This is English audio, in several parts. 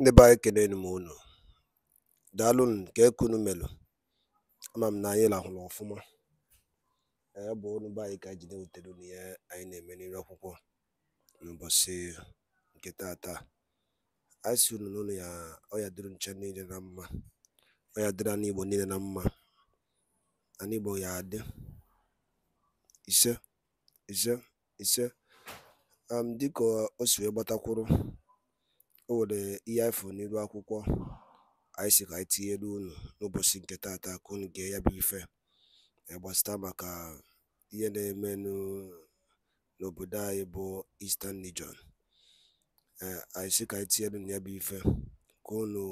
ndị be anyị kelenu m unu daalụnụ nke kunu melụ ama m na anyị lahụrụ ọfụma Ee, bụ unu be anyị ka anyị ji na-ewutere unu ihe anyị na-eme n'ire akwụkwọ n'ụbọchị nke taata. anyị si unu n'ụlọ ya ọya dịrị nche niile na mma ọya dịrị anụ igbo niile na mma anụ igbo ya adị ise ise ise dịka o si wee gbatakwuru o nwere ihe anyị fụrụ n'elu akwụkwọ anyị si ka anyị tinyere unu n'ụbọchị nke tata ka unu gee ya bụ ife gbasata maka ihe na-eme n'obodo anyị bụ Eastern Region e, anyị sị ka anyị tinyere unu ya bụ ife ka unu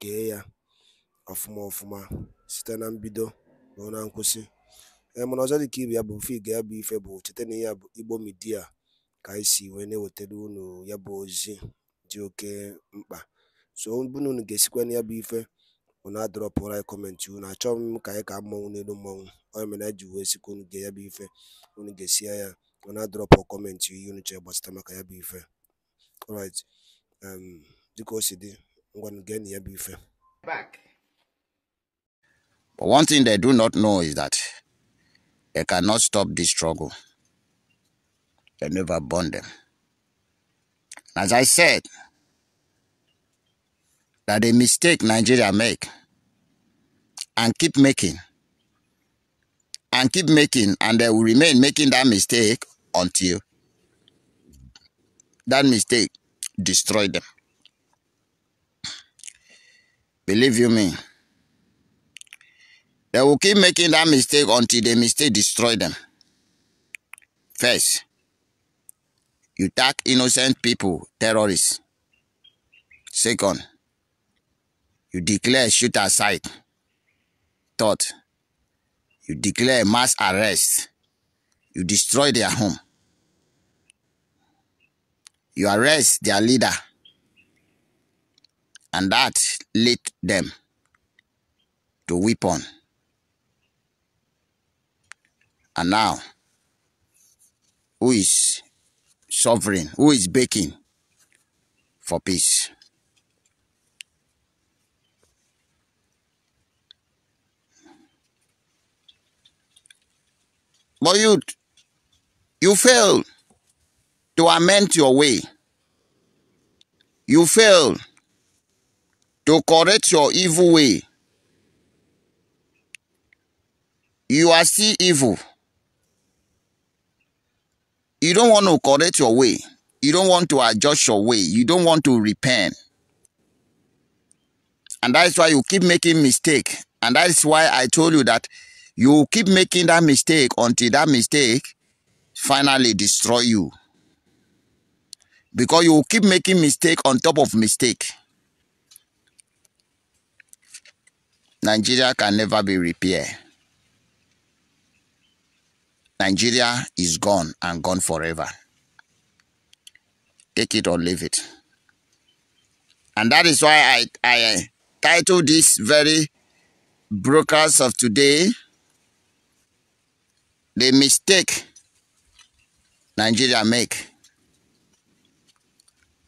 gee ya ọfụma ọfụma site na mbido ruo na nkwụsị e, mana ọzọ dị ka ibe ya bụ mfe gee ya bụ ife bụ cheta n'ihe ya bụ Igbo Media ka anyị si wee na-ewetara unu ya bụ ozi dị oke mkpa so unu unu ga-esikwa na ya bụ ife unu adọrọpụrụ anyị kọmentị unu achọghị m ka anyị ka mmọnwụ n'elu mmọnwụ ọ mere anyị ji wee sikwa unu ga ya bụ ife unu ga-esi ya unu adọrọpụ kọmentị ihe unu chọrọ gbasata maka ya bụ ife alright um, dịka o si dị ngwanụ gee na ya bụ ife But one thing they do not know is that they cannot stop this struggle. They never burn them. As I said, that a mistake Nigeria make and keep making and keep making and they will remain making that mistake until that mistake destroy them. Believe you me. They will keep making that mistake until the mistake destroy them. First, You attack innocent people, terrorists. Second, you declare shoot aside. Third, you declare mass arrest. You destroy their home. You arrest their leader. And that lead them to weapon. And now, who is sovereign who is baking for peace. But you, you fail to amend your way. You fail to correct your evil way. You are still evil. You don't want to correct your way. You don't want to adjust your way. You don't want to repent. And that is why you keep making mistake. And that is why I told you that you keep making that mistake until that mistake finally destroy you. Because you keep making mistake on top of mistake. Nigeria can never be repaired. Nigeria is gone and gone forever. Take it or leave it. And that is why I, I titled this very broadcast of today, The Mistake Nigeria Make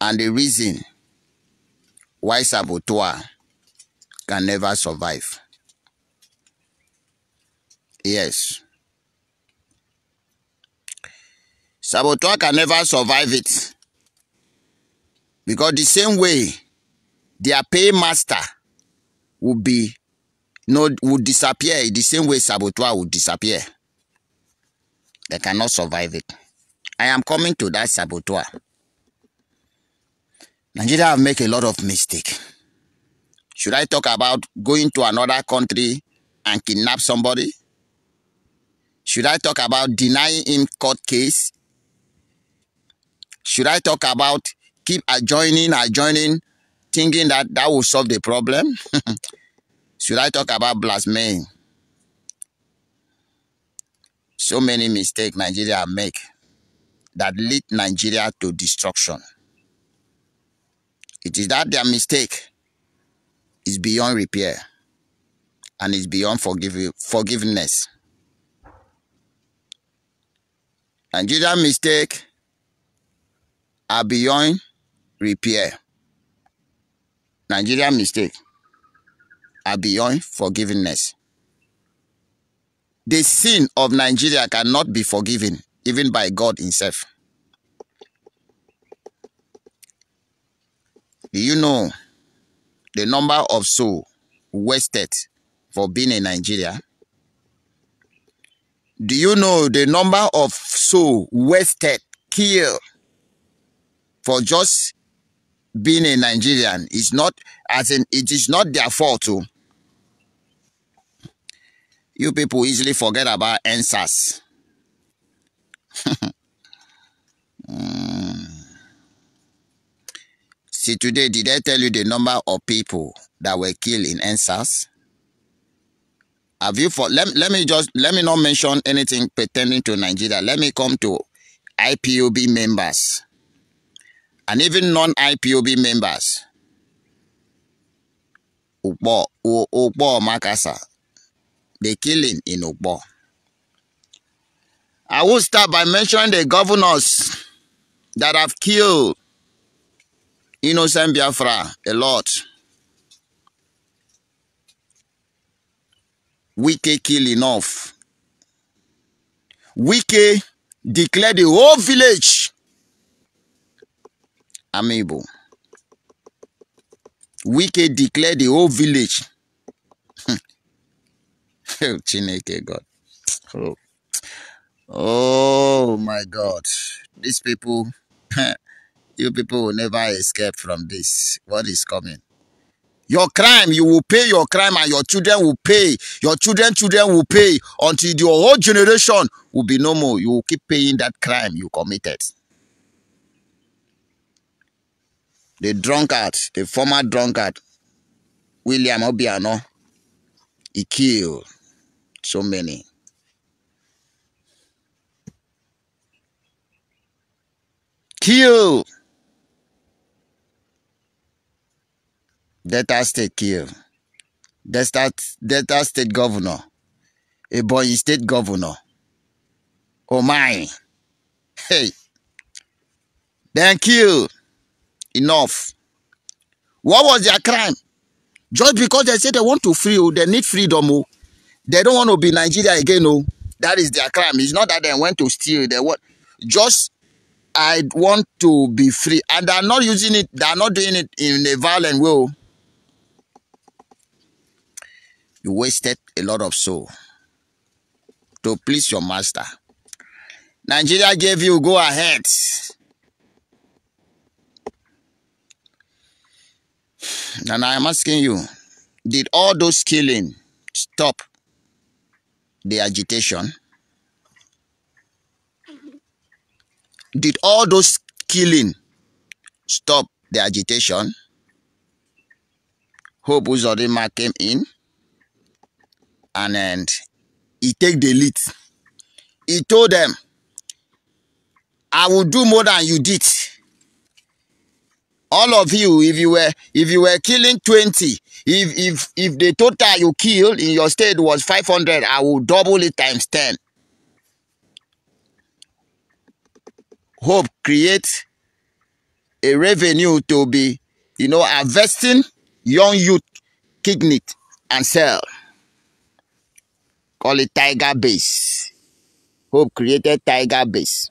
and the Reason Why Sabotua Can Never Survive. Yes. Saboteur can never survive it. Because the same way their paymaster will be no will disappear the same way saboteur will disappear. They cannot survive it. I am coming to that saboteur. Nigeria have made a lot of mistake. Should I talk about going to another country and kidnap somebody? Should I talk about denying him court case Should I talk about keep adjoining, adjoining, thinking that that will solve the problem? Should I talk about blasphemy? So many mistakes Nigeria make that lead Nigeria to destruction. It is that their mistake is beyond repair and is beyond forgive, forgiveness. Nigeria mistake are beyond repair. Nigeria mistake are beyond forgiveness. The sin of Nigeria cannot be forgiven even by God himself. Do you know the number of souls wasted for being in Nigeria? Do you know the number of souls wasted, killed for just being a Nigerian. It's not, as in, it is not their fault. Too. Oh. You people easily forget about answers. mm. See, today, did I tell you the number of people that were killed in answers? Have you for let, let me just let me not mention anything pertaining to Nigeria. Let me come to IPOB members and even non-IPOB members. Ukpo, Ukpo Makasa, the killing in Ukpo. I will start by mentioning the governors that have killed innocent Biafra a lot. Wike kill enough. Wike declared the whole village we Wike declared the whole village. oh, Chineke God. Oh. oh my God. These people, you people will never escape from this. What is coming? Your crime, you will pay your crime and your children will pay. Your children, children will pay until your whole generation will be no more. You will keep paying that crime you committed. the drunkard, the former drunkard, William Obiano, he killed so many. Kill! Delta State kill. Delta, Delta State governor. a Ebonyi State governor. Oh my. Hey. thank you enough. What was their crime? Just because they say they want to free, oh, they need freedom, oh, they don't want to be Nigeria again, oh, that is their crime. It's not that they went to steal. They want just I want to be free, and they are not using it. They are not doing it in a violent way. Oh. You wasted a lot of soul to please your master. Nigeria gave you go ahead. And I am asking you, did all those killing stop the agitation? Did all those killing stop the agitation? Hope Uzodima came in and, and he take the lead. He told them, I will do more than you did. all of you if you were if you were killing 20 if if if the total you killed in your state was 500 i will double it times 10 hope create a revenue to be you know investing young youth kidney and sell call it tiger base hope created tiger base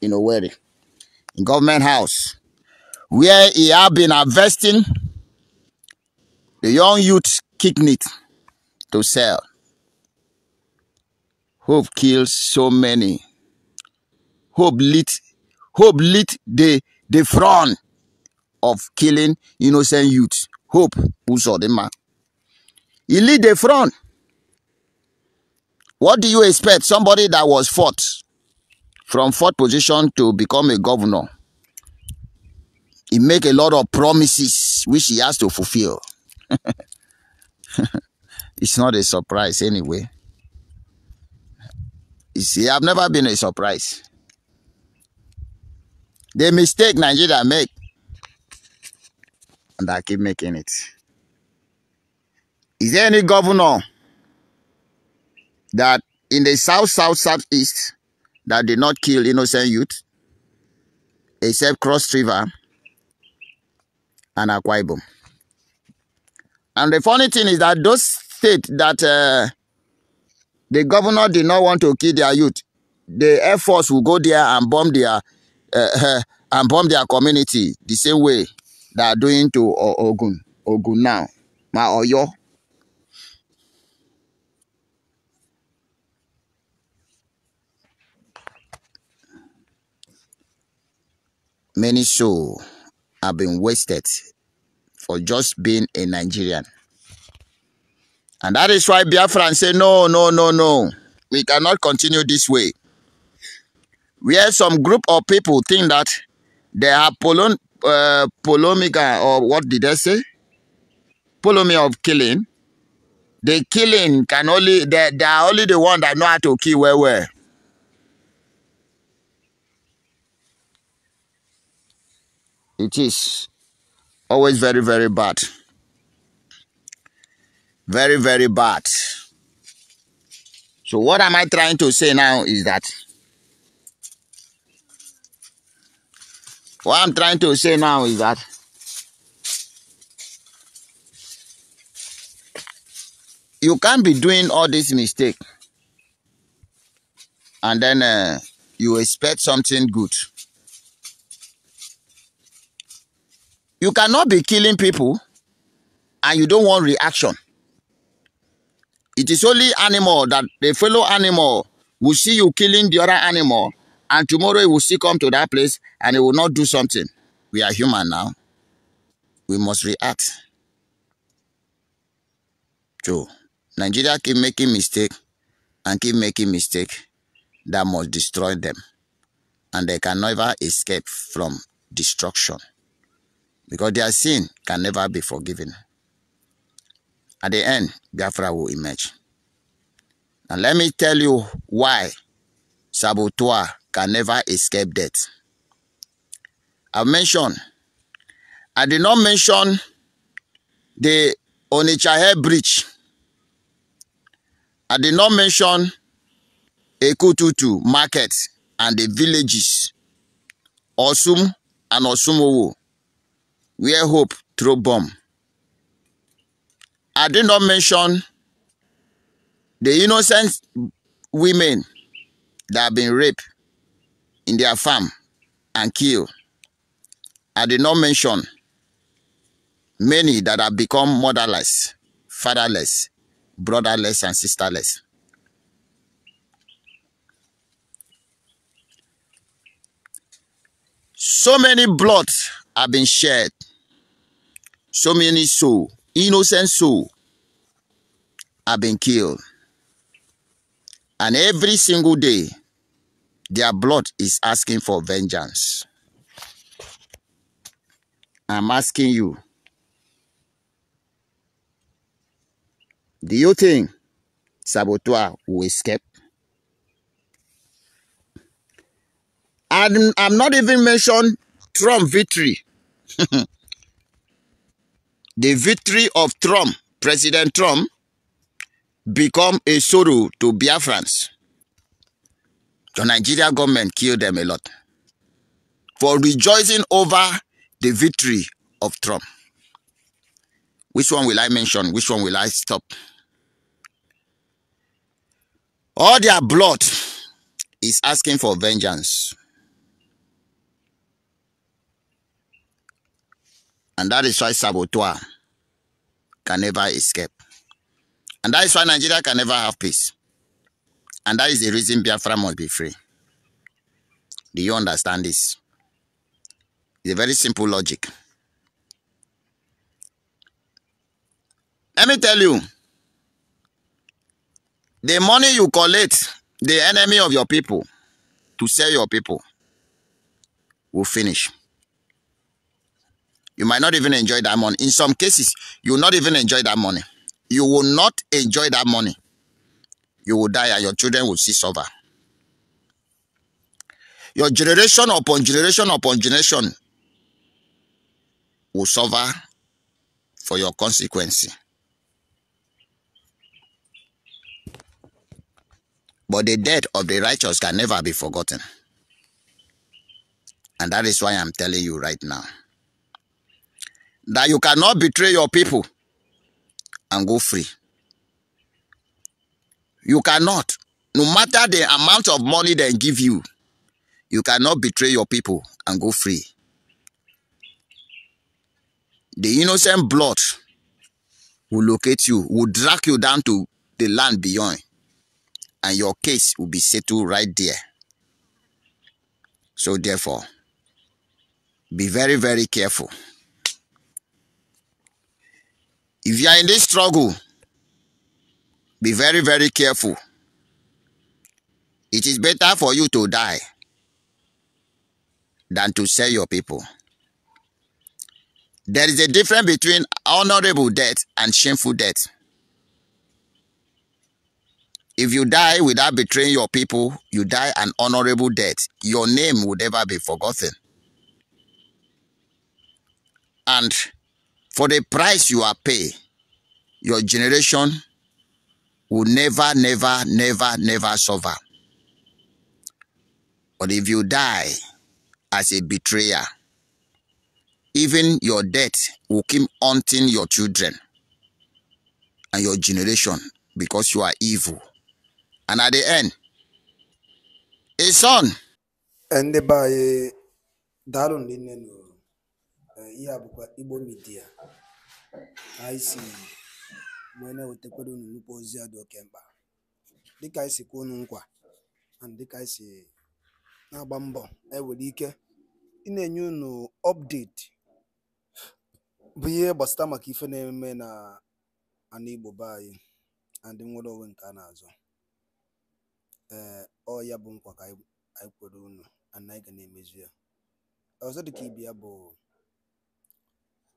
in a way in government house where he had been investing the young youth kidney to sell. Hope killed so many. Hope lit, hope lit the, the front of killing innocent youth. Hope, who saw the man. He lit the front. What do you expect? Somebody that was fought from fourth position to become a governor he make a lot of promises which he has to fulfill. it's not a surprise anyway. You see, I've never been a surprise. The mistake Nigeria make, and I keep making it. Is there any governor that in the south, south, southeast that did not kill innocent youth, except Cross River? and Akwa Ibom. And the funny thing is that those states that uh, the governor did not want to kill their youth, the Air Force will go there and bomb their uh, uh and bomb their community the same way they are doing to Ogun, Ogun now, Ma Oyo. Many show have been wasted for just being a Nigerian. And that is why Biafran say, no, no, no, no. We cannot continue this way. We Where some group of people think that they are polon, uh, polemica, or what did they say? Polemy of killing. The killing can only, they, they are only the one that know how to kill well, well. It is always very, very bad. Very, very bad. So, what am I trying to say now is that what I'm trying to say now is that you can't be doing all this mistake and then uh, you expect something good. You cannot be killing people and you don't want reaction. It is only animal that the fellow animal will see you killing the other animal and tomorrow it will still come to that place and it will not do something. We are human now. We must react. So, Nigeria keep making mistake and keep making mistake that must destroy them. And they can never escape from destruction because their sin can never be forgiven. At the end, Biafra will emerge. Now let me tell you why Sabotua can never escape death. I've mentioned, I did not mention the Onichahe Bridge. I did not mention Ekututu market and the villages, Osum and Osumowo where hope through bomb. I did not mention the innocent women that have been raped in their farm and killed. I did not mention many that have become motherless, fatherless, brotherless, and sisterless. So many bloods have been shed. So many souls, innocent souls, have been killed. And every single day, their blood is asking for vengeance. I'm asking you, do you think Saboteur will escape? I'm, I'm not even mentioned Trump victory. the victory of Trump, President Trump, become a sorrow to Biafrans. The Nigeria government killed them a lot for rejoicing over the victory of Trump. Which one will I mention? Which one will I stop? All their blood is asking for vengeance. And that is why saboteur can never escape. And that is why Nigeria can never have peace. And that is the reason Biafra must be free. Do you understand this? It's a very simple logic. Let me tell you, the money you collect, the enemy of your people, to sell your people, will finish. You might not even enjoy that money. In some cases, you will not even enjoy that money. You will not enjoy that money. You will die and your children will see suffer. Your generation upon generation upon generation will suffer for your consequence. But the death of the righteous can never be forgotten. And that is why I'm telling you right now that you cannot betray your people and go free. You cannot. No matter the amount of money they give you, you cannot betray your people and go free. The innocent blood will locate you, will drag you down to the land beyond, and your case will be settled right there. So therefore, be very, very careful. If you are in this struggle, be very, very careful. It is better for you to die than to sell your people. There is a difference between honorable death and shameful death. If you die without betraying your people, you die an honorable death. Your name will never be forgotten. And for the price you are paid, your generation will never, never, never, never suffer. But if you die as a betrayer, even your death will keep haunting your children and your generation because you are evil. And at the end, a son. And by Darun Linenu. ihe a bụkwa Igbo midia anyị si wee na-ewetakwara unu nnukwu ozi a dị oke mkpa dịka anyị si kwuo unu nkwa na dịka anyị si na-agba mbọ ewere ike ị na-enye unu ọpdeti bụ ihe gbasara maka ife na-eme na ana Igbo be anyị na ndị nwere onwe nke a na-azọ ee ọ ya bụ nkwa ka anyị kwere unu anyị ga na-emezu ya ọzọ dịka ya bụ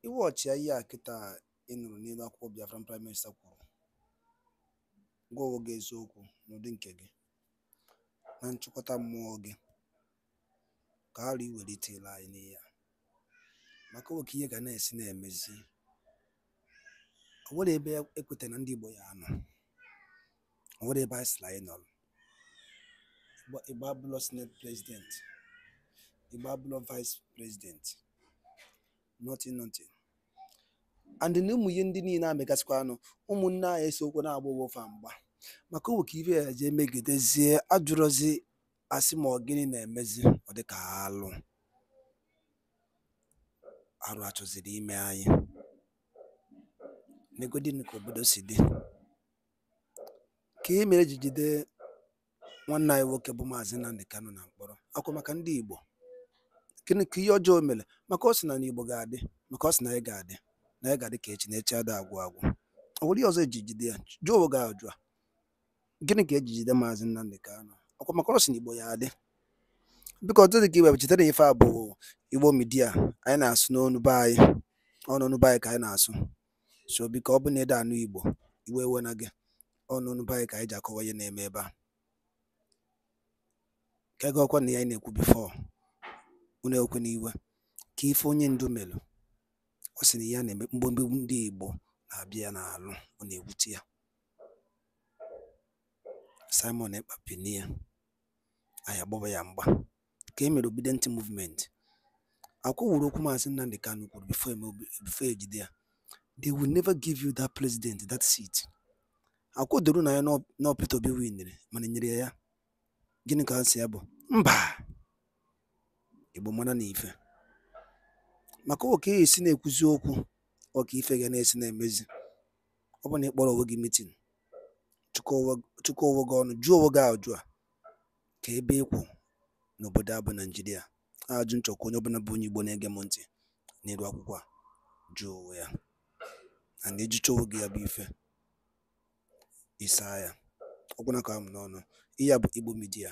iwọchịa ihe a kịta ị nụrụ n'elu akwụkwọ Biafran Prime Minister kwuru gwa onwe gị eziokwu n'ụdị nke gị na nchịkọta mmụọ gị ka ara iwelitela anyị n'ihe a maka oke ihe ga na-esi na-emezi o nwere ebe ekweta na ndị Igbo ya anọ o nwere ebe anyị sịrị anyị nọrọ Igbo abụlọ senate president Igbo abụlọ vice president nothing nothing and na ụmụ ihe ndị niile na-amegasịkwa anụ ụmụnne anyị esokwu na-agba ụwofa mgba maka owe ka ibe ya jee megidezie ajụrụzi asị ma ọ gịnị na-emezi ọ dịka alụ arụ achọziri ime anyị negodin ka obodo si dị ka e mere ji jide nwanne anyị nwoke bụ maazị Nnamdi Kanu na mkpọrọ akwa maka ndị Igbo gịnị ka ihe ọjọọ mere maka ọ sị na n'Igbo ga-adị maka ọ sị na anyị ga-adị na ya ga dị ka echi na echi adịghị agwụ agwụ ọ bụrụ ihe ọzọ eji jide ya jụọ oge ajụ a gịnị ka eji jide maazị Nnamdi Kanu ọkwa maka ọsị Igbo ya adị biko ọtụtụ dị ka ibe chetara ife a bụ Igbo midia anyị na-asụ n'ọnụ be anyị ọnụnụ be anyị ka anyị na-asụ so biko ọ bụ na ede anụ Igbo iwe ewe na gị ọnụnụ be anyị ka anyị ji akọwa ihe na-eme ebe a ka ego ọkwa na ya anyị na-ekwu bifo unu ekwe na iwe ka ife onye ndu melụ ọ sị na ya na mgbemgbegbu ndị Igbo na-abịa ya n'alụ ọ na-ewute ya Simon Ekpa pini ya anyị agbaba ya mgba ka e mere ntị Movement akwụwụrụ okwu Maazị Nnamdi Kanu kwuru e bifo ejide ya they will never give you that president that seat akwụdoro na ya na Peter Obi winere mana e nyere ya ya gịnị ka ha si ya bụ mba Igbo mara na ife maka ka esi na-ekwuzi okwu ọka ife ga na-esi na-emezi ọ bụ na ị kpọrọ onwe gị mitin chụkọ onwe gị ọnụ jụọ onwe gị ajụ a ka ebe ịkwụ n'obodo a bụ naijiria ajụ nchọkwa onye ọbụla bụ onye igbo na-ege m ntị n'elu akwụkwọ a jụọ onwe ya na na-ejicha onwe gị ya bụ ife ịsaa ya ọgwụna ka m n'ọnụ ihe a bụ igbo midia